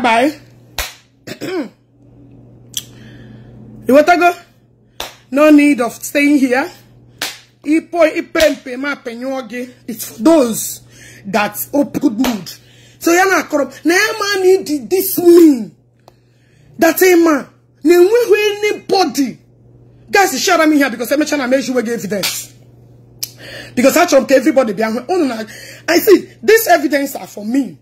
bye bye. You want to go? no need of staying here. It's for those that up good mood. So you're not corrupt. Neema need this mean. That a man. We anybody. Guys, share me here because I'm trying to make sure we give evidence. Because I trump everybody. behind me. Oh, I see, this evidence are for me.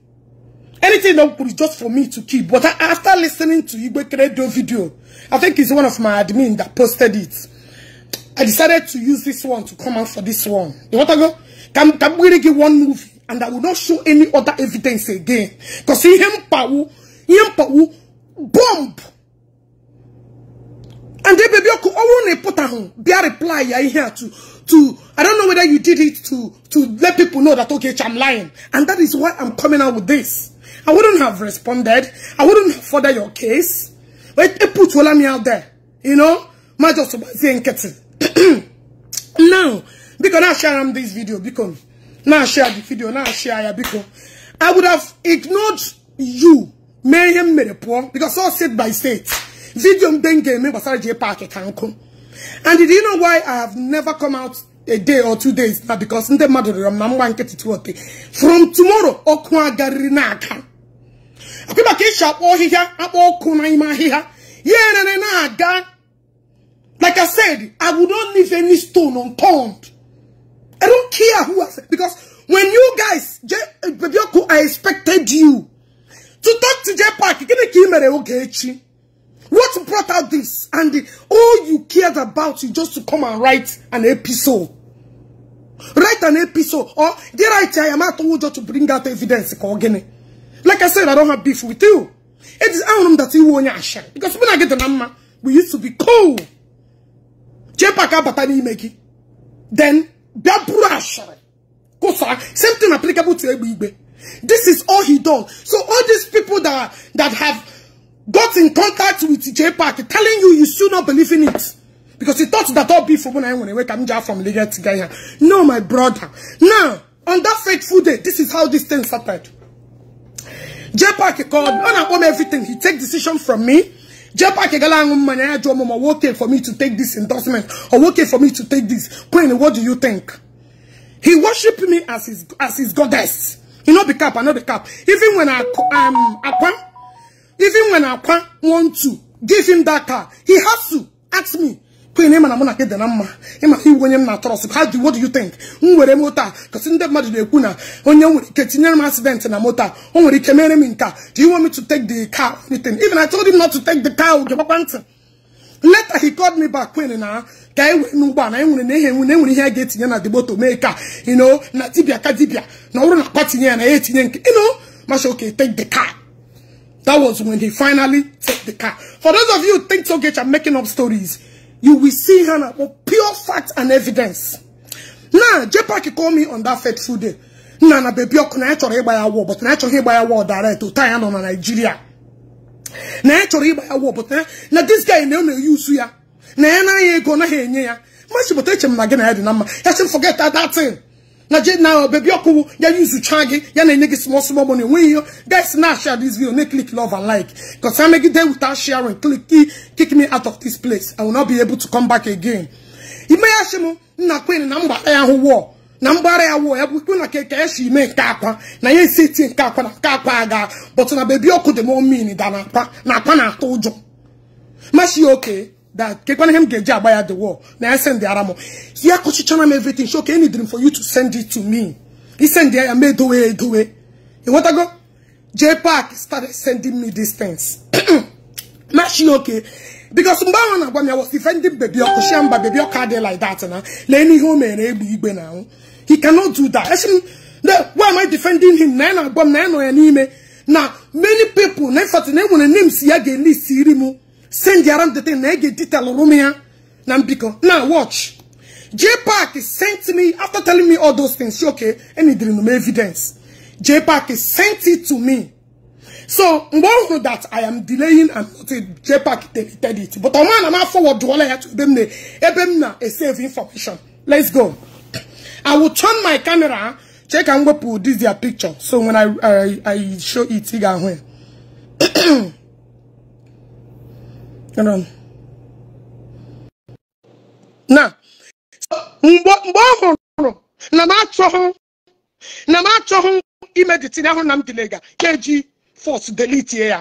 Anything that could be just for me to keep. But after listening to Igwe Radio video, I think it's one of my admin that posted it. I decided to use this one to come out for this one. You want to go? Can, can we give one movie? And I will not show any other evidence again. Because he him bomb. And the baby could only put on be a reply here to to I don't know whether you did it to to let people know that okay, I'm lying. And that is why I'm coming out with this. I wouldn't have responded. I wouldn't further your case. But it put me out there. You know? My just saying it. now, because I share this video, because now share the video, now share it, because I would have ignored you. Mayhem made because all said by state. Video then game basara And did you know why I have never come out a day or two days because in the matter of my one get it From tomorrow, Okwa Garina account akwa maka isi akpọ ọhịhịa akpọ ọkụ n'ime ahịhịa ya erere na-aga like I said, I would not leave any stone unturned. I don't care who I said because when you guys, J eh, I expected you to talk to J Park. What brought out this? And the, all you cared about is just to come and write an episode. Write an episode. Or, did I tell you, I'm not to bring out evidence. Again. Like I said, I don't have beef with you. It is Anum that you want your share. Because when I get the number, we used to be cool. Jepaka batani meki. Then, Biabura share. Kosa, same thing applicable to Ebibe. This is all he does. So all these people that, that have got in contact with Jepaka telling you you should not believe in it. Because he thought that all beef when I went away, from am to from Gaya. No, my brother. Now, on that fateful day, this is how this thing started. J-Pack called me on everything. He take decision from me. J-Pack money working for me to take this endorsement or working for me to take this. Queen, what do you think? He worship me as his as his goddess. He not the cap, I not the cap. Even when I um Aqua, even when Aqua want to give him that car, he has to ask me kwe na ịmana mụ na gị dị na mma ịmana iwu onye m na-atọrọsị ha dị what do you think m were moto a kasị ndị mmadụ na-ekwu na onye nwere ike tinyere m accident na mota a o nwere ike mere m nka do you want me to take the car anything even I told him not to take the car oge gbakwa ntị later he called me back kwen na ka e were n'ugbo na enwere na ihe enwe na enwere ihe a ga-etinye na dimoto mee ka ino na dibia ka dibia na ọrụ na akwa tinye ya na ya etinye nke ino masha okay take the car that was when he finally take the car for those of you think so get I'm making up stories you will see her now pure fact and evidence. Now, Jepaki called me on that fateful day. Now, na baby, I can't by a war, but I can't by a war direct to Thailand or Nigeria. Now, I ya by a war, but now this guy never use ya. Now, ego ain't gonna hear ya. Much, but I can't forget that, that thing. na je now baby okuwu ya use changi ya na enye small small money when you guys na share this video make click love and like because i make it there without sharing click kick me out of this place i will not be able to come back again ime ya shimu nna kwen na mgbara ya hụ wọọ na mgbara ya wọọ ya bụ ikpe na keke ya si ime nke akwa na ya esi eti nke akwa na nke akwa aga but na bebi ọkụ dị m omin da na akwa na akwa na-atụ ụjọ mashi oke that kekwana him geji agbaya the wall na i send the aramo ya kochichana m everything so okay any dream for you to send it to me he send the i made away away you want to go j park started sending me these things she okay because mgbe ahụ na-agwa m ya was defending baby ọkụ shia mba baby ọkụ adị like that na lee n'ihe o mere egbe igbe na ahụ he cannot do that esi m why am i defending him na ya na-agwa m na ya n'ime na many people na ịfọtụ na enwere names ya ga-elist siri mu. send around the thing. I detail Oromia. Nambiko. Now watch. J Park sent me after telling me all those things. Okay, and he didn't evidence. J Park sent it to me. So mgbọhụ that I am delaying and not J Park deleted it. But ọma na ma forward wala ya to them ne ebe m na e save information. Let's go. I will turn my camera. Check and go put this their picture. So when I I, I show it, you when. na mgbe ọ hụrụ na m achọghị na m achọghụ imeditin ahụ na m dilega ka eji force delitie ya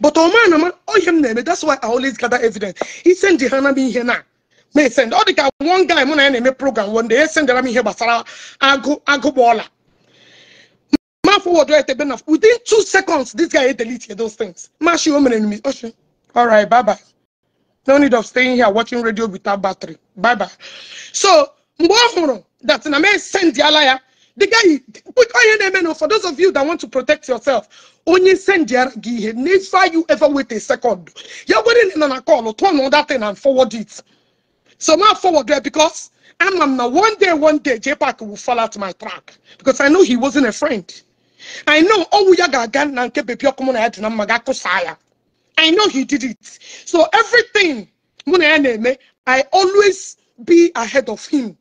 but ọma na m ohe m na-eme that's why I always gather evidence isendi ha na m ihe na ma e send ọ dịka one guy mụ na ya na-eme program one day esendara m ihe gbasara agụ agụgba ọla ma fọwọdụ etebe na within two seconds this guy edelite those things mashi o mere All right, bye bye. No need of staying here watching radio without battery. Bye bye. So, that in a send the liar. The guy put on for those of you that want to protect yourself. Only send the I you ever wait a second. You're waiting on a call, or turn on that thing and forward it. So now forward there because I'm, I'm one day, one day, J will fall out my track because I know he wasn't a friend. I know all we are going to get baby come on I'm I know he did it. So everything I always be ahead of him.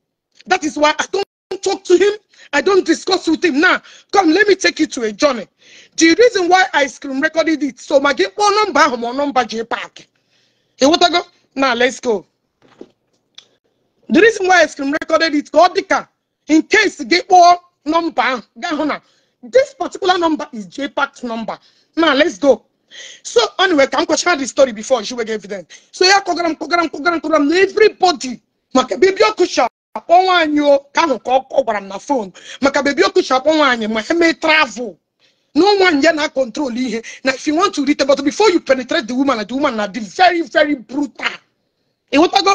That is why I don't talk to him. I don't discuss with him. Now, nah, come, let me take you to a journey. The reason why I screen recorded it, so my game. one oh, number, one oh, number, J Park. Hey, what I go? Now, let's go. The reason why I screen recorded it, Godika, in case gate one number, this particular number is J JPAC's number. Now, let's go. So anyway, ka m kọchara the story before she wege evident. So yeah, kọgara m kọgara m everybody maka bebi ọkụcha akpọ nwaanyị o can ahụ ka ọ gwara phone? na fon maka bebi ọkụcha akpọ nwaanyị ma ha mee travel no one ya na control ihe na if you want to read but before you penetrate the woman the woman na very very brutal ịghọtago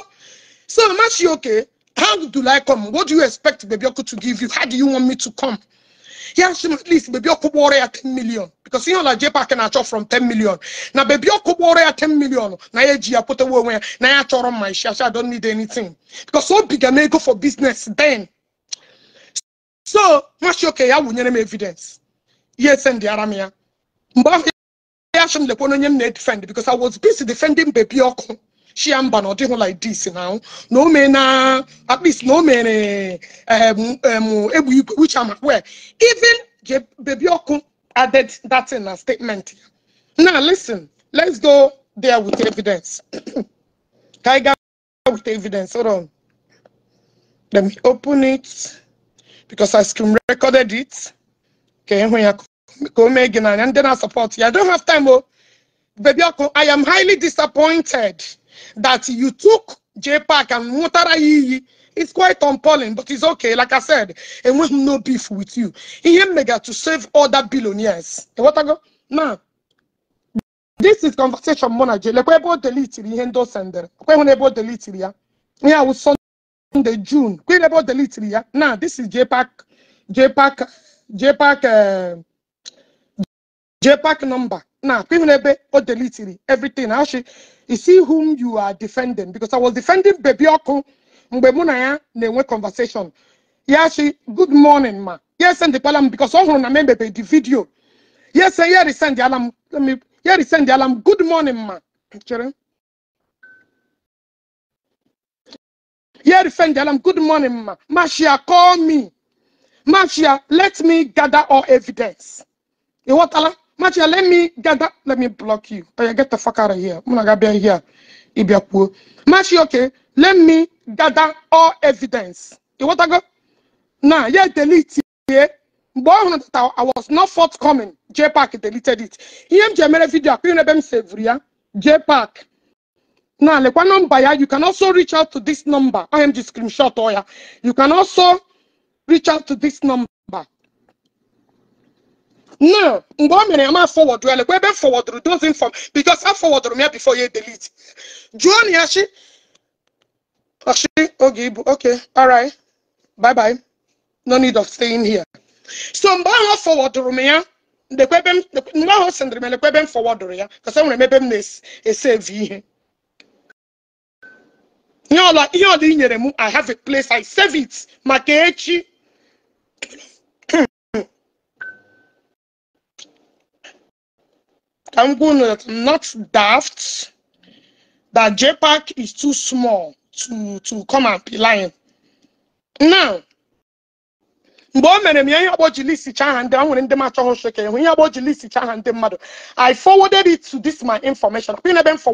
so mama she okay how do I come what do you expect bebi to give you how do you want me to come yeah, she at least baby okubore at 10 million. Because you know like JPA can achọ from 10 million. Now baby okubore at 10 million. Na ye ji apote wewe. Na ya chọrọ my share. I don't need anything. Because so big and go for business then. So, much okay, I will name evidence. Yes, and the Aramia. Mbafi, I should defend because I was busy defending baby okubore. She am na ọ like this now. No man, uh, at least no man. Uh, um, um, igwe which am aware even baby added that in a statement now listen let's go there with evidence ka anyị go with evidence hold on let me open it because I screen recorded it Okay, when ya go Megan and then I support you. I don't have time oh, baby I am highly disappointed that you took J Park and Mutara Iyi it's quite appalling, but it's okay. Like I said, and we have no beef with you. He mega to save other billionaires. And what I go now. This is conversation manager. Like we about delete the endo sender. We're about delete it? Yeah, in Sunday June. We're about delete Yeah. Now this is JPAC, JPAC, JPAC, uh, JPAC number. Now, Pimunebe Odelitiri, everything. Actually, you see whom you are defending because I was defending Bebioko Mbemunaya Newe conversation. Yeah, she, good morning, ma. Yes, and the palam because all on remember the video. Yes, and here is send the alarm. Let me here is send the alarm. Good morning, ma. Here is send the alarm. Good morning, ma. Mashia, call me. Mashia, let me gather all evidence. You what alarm? Machia, let me get that. Let me block you. But oh, you get the fuck out of here. Munagabia here. Ibiapuo. Machia, okay. Let me gather all evidence. You want to go? Nah, yeah, delete it. Yeah. I was not forthcoming. J Park deleted it. EMJML video, I couldn't J Park. Now, like one number, you can also reach out to this number. IMG screenshot, or yeah. You can also reach out to this number. now mgbe o mere ya ma fọwọdụ ele kwa ebe fọwọdụrụ dozin fọm bikos a fọwọdụrụ m ya ya e delete jụọ na ya chi oge ibu ok alright bye bye no need of staying here so mgbe ahụ ọ m ya mgbe ahụ sendịrị m elekwa ebe m fọwọdụrụ ya kọsa nwere ebe m na-esevi ihe ihe ọla ihe ọla i nyere i have a place i save it maka echi I'm going to not daft, that JPEG is too small to, to come and be lying. Now, list list i forwarded it to this my information list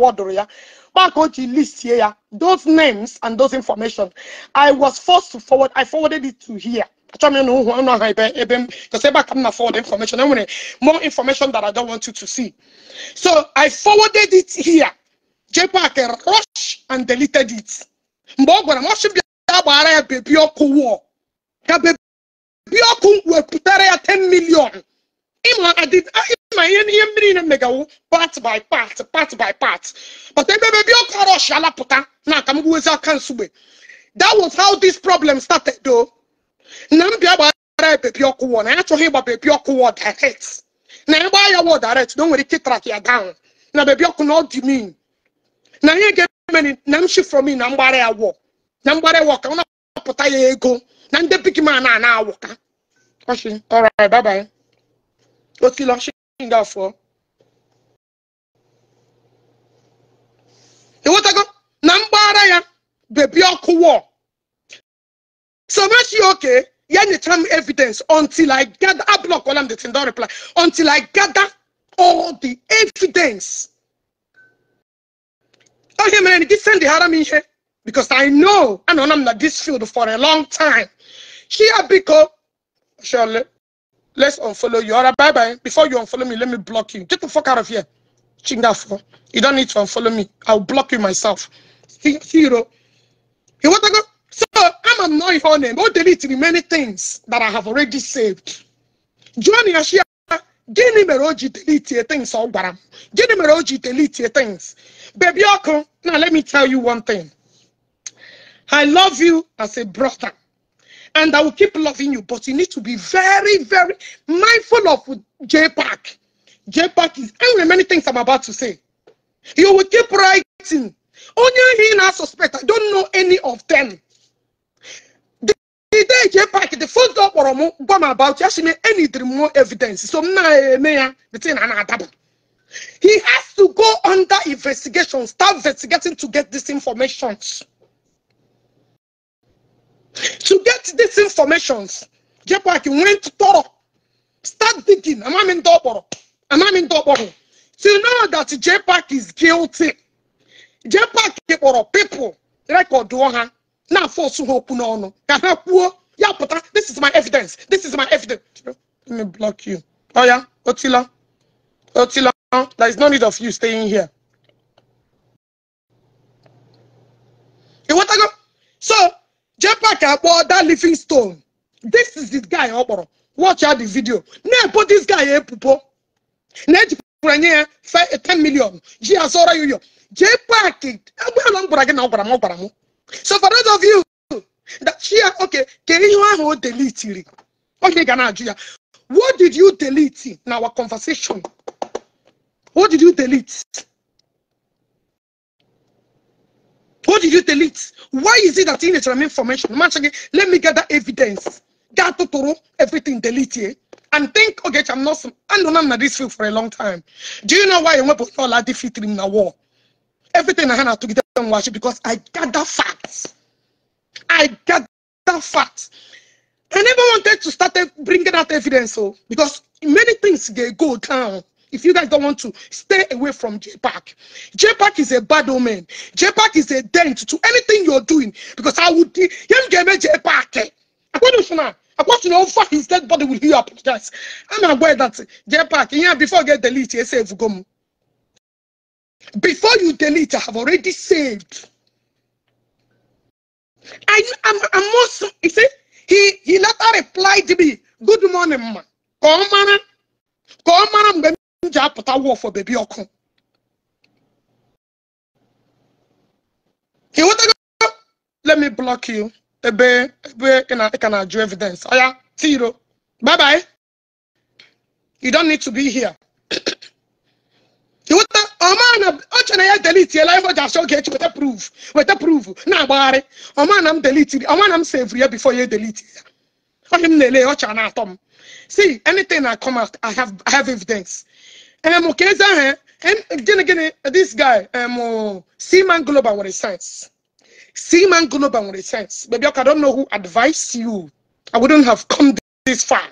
those names and those information i was forced to forward i forwarded it to here Achọm na ụhụ ọnụ aha ebe ebe m because ebe a ka m na forward information more information that I don't want you to see. So I forwarded it here. JPAC rush and deleted it. Mgbe ọ gwara m ọ sị bịa gbaghara ya bebi ọkụ wụọ ka bebi ọkụ wepụtara ya 10 million. ịma ịma ihe ihe mmiri na mmegawu part by part part by part but ebe bebi ọkụ rush alapụta na aka m gbuwezi aka nsugbe. That was how this problem started though. na nnamdi agbara pepi ọkụ wọ na ya achọghị ịgba bebi ọkụ wọ direct na ya gbaa ya wọ direct na o nwere ike track ya down na bebi ọkụ na ọ dị mean na ihe ga-eme na m shi from na mgbara ya wọ na mgbara ya wọ ka ọ na-apụta ya ego na ndị big man a na-awụ ka ọchị ọra na mgbara ya bebi ọkụ wọ So much you okay? Yeah, any evidence until I gather. I block all the thing. Don't reply until I gather all the evidence. Okay, oh, man, this send the haram in here because I know I know I'm not this field for a long time. Here, because Shirley, let's unfollow you. All right, bye bye. Before you unfollow me, let me block you. Get the fuck out of here. Chingafo. You don't need to unfollow me. I'll block you myself. See You want to go? So I'm annoying her name. Oh, deleting many things that I have already saved. Johnny Ashia, gịnị mere o ji deletie things all, gwara m? Gịnị mere o things? Baby now let me tell you one thing. I love you as a brother. And I will keep loving you, but you need to be very, very mindful of J J pack is, I know many things I'm about to say. You will keep writing. Only he now suspect. I don't know any of them ide eji epak the first ọ kpọrọ m gwa m about ya shi me enidiri more evidence so m na-eme eh, ya ah, the thing ah, na he has to go under investigation start investigating to get this information to get this information jepak went thorough start digging in ndị Am amami in ọkpọrọ to know that jepak is guilty jepak kpọrọ people record ha na ọsụ ha okwu n'ọnụ ka ha kwuo ya pụta this is my evidence this is my evidence let me block you ọ oh, ya otila otila there is no need of you staying here Iwetago? so JPAC akpọ that stone. this is the guy ọ kpọrọ watch out the video na ebo this guy e pupo. na-ejikwara nye ya 10 million ji ya zụọrọ ya uyo JPAC agbe ala gwara gị na ọ gwara m ọ gwara m so for those of you that here, okay can you ahụ o delitiri onye ga what did you delete in our conversation what did you delete what did you delete why is it that in the information let me gather evidence got to everything delete it. Eh? and think okay i'm not i don't know this field for a long time do you know why you went to all defeat in the war everything i had to get and worship because I gather facts. I gather facts. I never wanted to start e- bringing out evidence, so oh, because many things they go down. If you guys don't want to stay away from JPAC, JPAC is a bad omen. JPAC is a dent to anything you're doing because I would you get give JPAC. I want to know. I want to know how his dead body will heal up. Guys, I'm aware that JPAC, yeah, before I get deleted, I say, you come. Before you delete, I have already saved. I, I'm, I'm also, you see, he, he later replied to me, Good morning, ma. Come on, come on, I'm going to put a war for baby Okun. He want go, let me block you. Ebe, ebe, can I can I do evidence? Oh, yeah, zero. Bye bye. You don't need to be here. he want to ọma ọ chere na ya delitiela ife ji achọ ga-echi weta proof weta proof na-agbagharị ọma na deleting delitiri ọma na m sevri ya before you delete it. onye m na-ele ọcha see anything I come out i have i have evidence um, ka eze and again, again, this guy um, seaman global nwere sense seaman global nwere sense baby I do don't know who advised you i wouldn't have come this far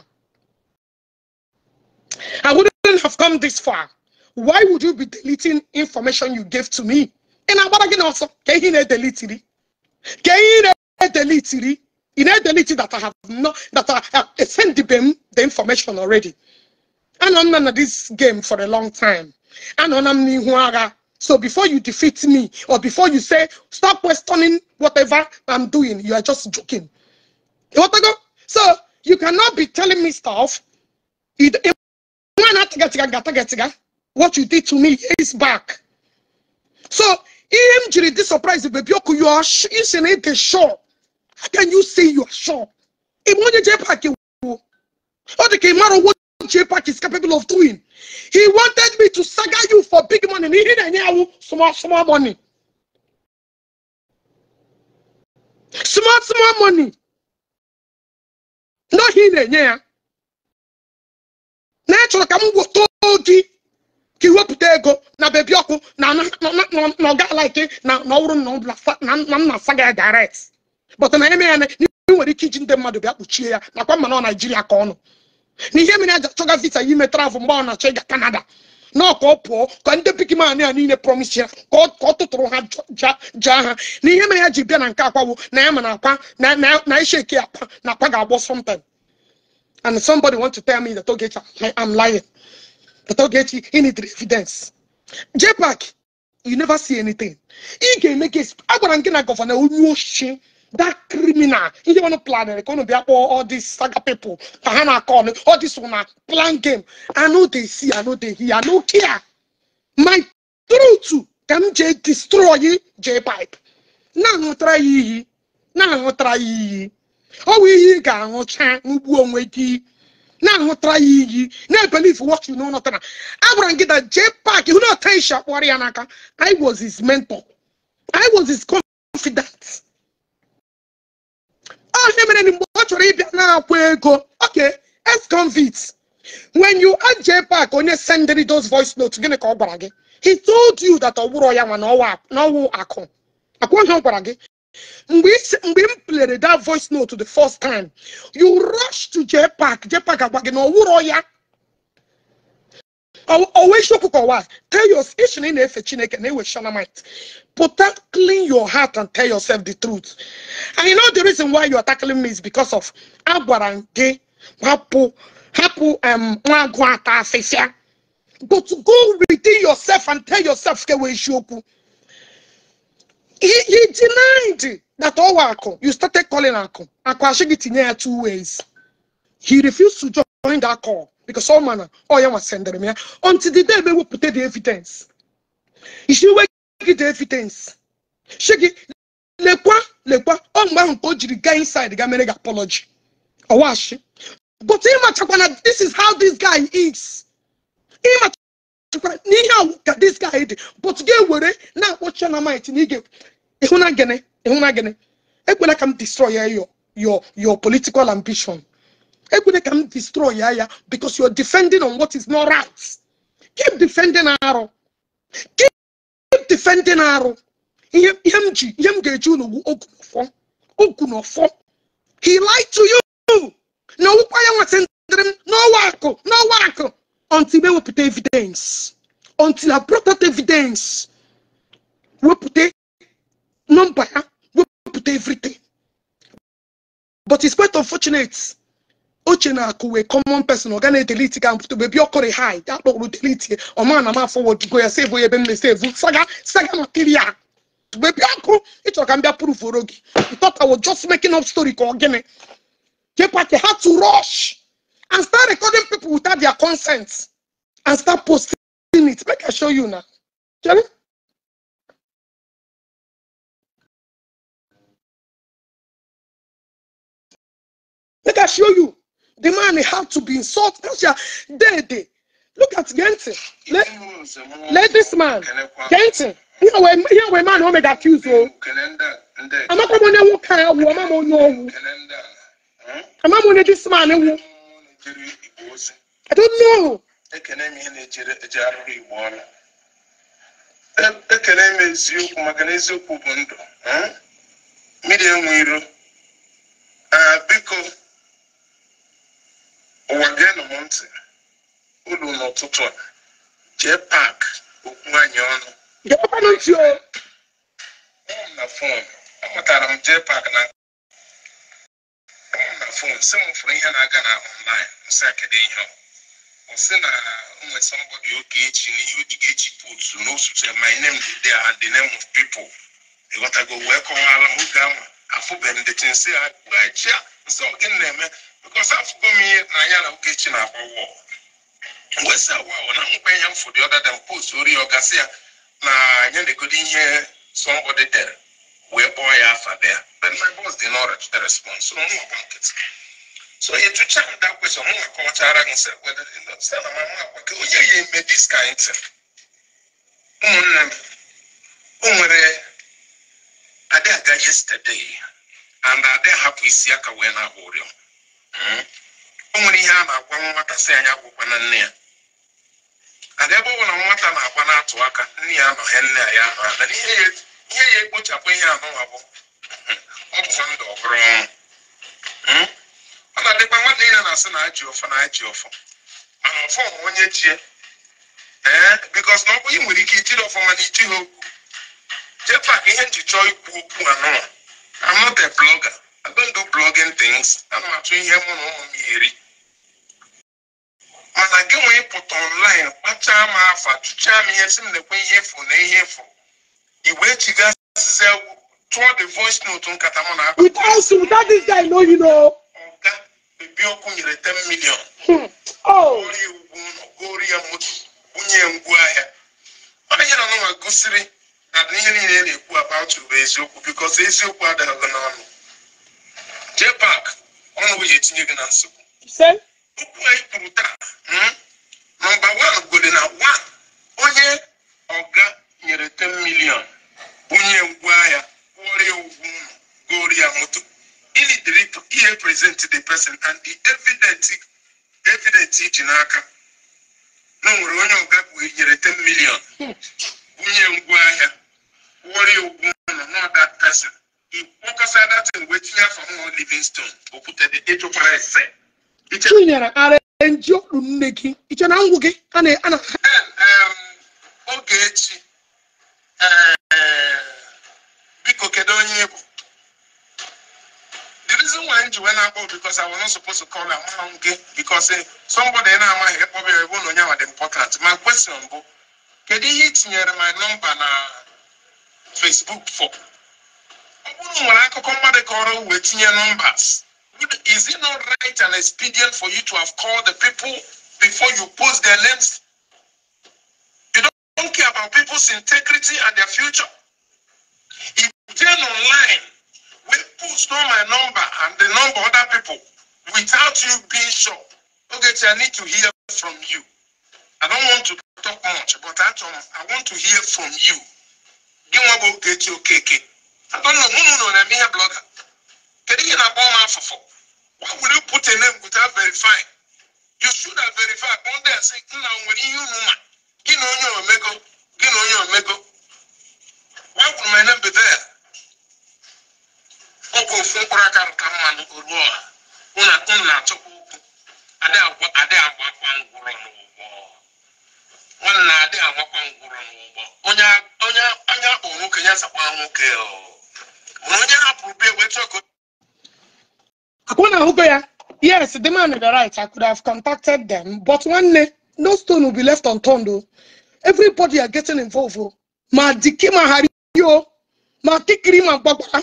i wouldn't have come this far why would you be deleting information you gave to me? And I'm going also, can you delete it? Can you delete it? In a delete that I have not, that I have sent the, the information already. And I'm of this game for a long time. And I'm so before you defeat me or before you say stop questioning whatever I'm doing, you are just joking. So you cannot be telling me stuff what you did to me years back. So, E M G this jiri dị surprise You are you are isi na ịdị sure how can you say you are sure If onye jee pak wo ọ what jee is capable of doing he wanted me to saga you for big money He didn't enye small small money small small money Not he didn't ya na ị chọrọ ka m ka iwepụta ego na bebi ọkụ na na ọga like na ọwụrụ na nna asa gị direct but na eme ya na ị nwere ike iji ndị mmadụ bịa kpuchie ya nakwa mana ọ naijiria ka ọnụ na mere aja chọga visa ya ime travel mgbe ọ na-achọ ịga kanada na ka ọ pụọ ka ndị pikiman ya niile promise ya ka ọ tụtụrụ ha jaa ha na ihe mere ya ji bịa na nke akwawo na ya mana akwa na isheke akwa na akwa ga-agbọ something and somebody want to tell me that oge I'm lying without getting any evidence. JPAC, you never see anything. He can make case. I want to governor who that criminal. He want to plan it. Going to be up all these saga people. Kahana call all this one plan game. I know they see. I know they hear. I know care. My truth can J destroy J pipe. Now try ye. Now try ye. Oh, we got no chance. We won't wait. na-ahụtara ya iyi na-ebelieve what na know nothing agwara m gị na jee pak hụ na otenshi akpọrọ ya n'aka I was his mentor I was his confidant ọ ihe mere mgbe ọ chọrọ ịbịa na-akwa ego ok, ex convict when you add jee pak onye sendịrị those voice notes gịnị ka ọ gwara gị he told you that ọ bụrụ ya nwa na ọwụ akụ akwụghị ọ gwara gị mgbe mgbe m plere that voice note the first time you rush to JPAC JPAC agwa gị na ọwụrọ ya ọwa isiokwu kọwa tell your ishi na ị na-efe chineke na ewe shanamite pụta clean your heart and tell yourself the truth and you know the reason why you are tackling me is because of agwara gị hapụ hapụ nwa agụ ata afịfịa but go within yourself and tell yourself kewe isiokwu he, he denied that all Akon, you started calling Akon. Akon two ways. He refused to join that call because all manner, oh, yeah, was sending him until the day we will put the evidence. He should get the evidence. Shake it. Lekwa, lekwa, on my uncle, you guy inside the guy made apology. Awashi. But him, this is how this guy is. Him, n'ihe awụ ka dis guy dị but ga were na-akpọ Dynamite na ige ịhụna gịnị ịhụna gịnị ekwela ka m destroy ya your your political ambition ekwela ka m destroy ya ya because you're defending on what is not right keep defending arụ keep defending arụ ihe m ji ihe m ga-eji unu ogu n'ọfọ ogu n'ọfọ he lie to you na ọwụkwa ya nwetị ndịrị m n'ọwa akụ n'ọwa akụ until we put evidence until i brought out evidence we put a number we put everything but it's quite unfortunate Ochena, na a common person ọ ga na-edelete ga mpụta bebi ọkọrị hi akpọkpụrụ delete ọ ma na forward afọwọd go ya sevu ebe m na-esevu saga saga material To be ọkụ ịchọrọ ka m proof prụfụrụ gị thought i was just making up story ka ọ gịnị kekwa ka ha to rush and start recording people without their consent and start posting it. Make I show you now. Jenny? Make I show you. The man had to be insulted. That's your day, Look at Genton. Let, let this man, Genton. Here we man who made accuse you. I'm not going to walk out. I'm not going to this man. na-ejere igbo ozi ekene m ihe na-ejere eje arụrụ igbo ọla e, ekene m eziokwu maka na eziokwu bụ ndụ hmm? mmiri enwe iro biko ụwa geenụ m ntị ụlọ n'ụtụtụ a jee pak okwu anyị ọnụ na fon amatara m jee pak na ọ na fon sị m fụrụ ihe na-aga na ọnlaịn nsị akedu ihe ọ sị na nwee somebody oke echi na ihe o echi ga-eji pụtu my name dị there and the name of people ịghọtago wee kọwaala m oge ahụ afụbeghị m dechi nsị ha gbachi nsị ọ gịnị na-eme bikọs afụgo m ihe na anya na echi na-agba wọl mgbe sị awa ọ na mkpa ihe m ọdada m post ori ọ gasị ya na anya na-egodo ihe somebody dere wee kpọọ ya afa there but my boss did not reach the response so mụ gba nkịtị so ị jụcha m that question mụ akọwachara gị sị wede dị ndọ ka onye ya eme this kind thing ụmụnne m o nwere adị aga yesterday and adị hapụ isi aka wee na-agba ụrịọ hmm? o nwere ihe a na-agwa nwata si anyị agwụkwa na nne ya ada ebe ọ bụla nwata na-agba na-atụ aka nne ya anọghị nne ya anọ na n'ihe ihe ya ekpochapụ ihe anụnwa bụ ọ ndụ ọbụrụ ọnwụ hmm? ọ na-adịkwa nwanne ya na-asị na ajị ọfọ na ajị ọfọ mana ọfọ ma onye chie ee bikos na ọ bụ ị nwere ike ijiri ọfọ mana iji ha okwu jepak ihe nji chọọ ikwu okwu anụ I'm not plọga blogger. ndụ don't do blogging m atụ ihe mụ na ụmụ m eri mana gị nwee ịpụta online kpachaa m afa tụchaa m ihe si m na-ekwe ihe efu na ihe efu ìwé chiga ṣiṣẹ́ through the voice note nkata mọ n'akọ. without him without this guy no you know. ọ̀gá bèbí ọkụ nyere ten million. Hmm. Oh. gori egwu gori ya moto ngwu ahịa. ọ na-enye na gosiri na ihe niile na-ekwu about bụ eziokwu because eziokwu adịghị n'ọnụ. JPAC ọnụ wee etinye gị na nsogbu. okwu anyị kwuru taa nọmba wan gole na wan onye ọga nyere 10 milion bunye ngwa ya kwụọrọ ụgwọ ụlọ goro ya moto ilidiri ihe present the person and the evident evident iji n'aka na nwere onye ọga bụ nyere 10 milion bunye ngwa ahịa kwụọrọ ya ụgwọ ụlọ na that person ịkpọkọsa datin wee tinye afọ nwa livingstone okwutere ịchụkwara ese chinyere ara nji ọrụ nne gị iche na ngwụ gị a na-ana oge echi Eh, biko kedu onye bụ the reason why nji wee na-akpọ because I was not supposed to call her mmanwụ gị because eh, somebody na-amaghị ịkpọba ya ebe ụlọ onye dị important my question bụ kedu ihe ị tinyere my number na Facebook for ọ bụrụ nwere akụkọ mmadụ kọrọ wee tinye numbers. is it not right and expedient for you to have called the people before you post their names don't care about people's integrity and their future. If they're online, we post know my number and the number other people without you being sure. Okay, I need to hear from you. I don't want to talk much, but I want to hear from you. Give me about get your KK. I don't know. No, no, no. I'm here, blogger. Can you get a bomb for four? Why would you put a name without verifying? You should have verified. Go there and say, "No, when you know." gị na onye omego gị na onye omego wee kwuru mene mbido ya ọkwa ofu mkpụrụ aka rụta mmanụ oruo a ụna ụnụ na-achọkwa okwu adị agbakwa ngwụrọ n'ụgbọ nwanne na adị agbakwa ngwụrọ n'ụgbọ onye anya akpọ nwoke ya zakwa nwoke mana onye hapụrụ bi egbe chọkọ akwụ na ahụgo ya yes the man the right i could have contacted them but nwanne no stone will be left unturned o oh. everybody are getting involved o oh. ma dike ma hari o oh. ma kikiri ma gbagbara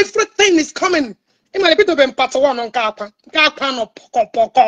everything is coming ịmara ebidobe m part one nke akwa nke akwa nọ pọkọpọkọ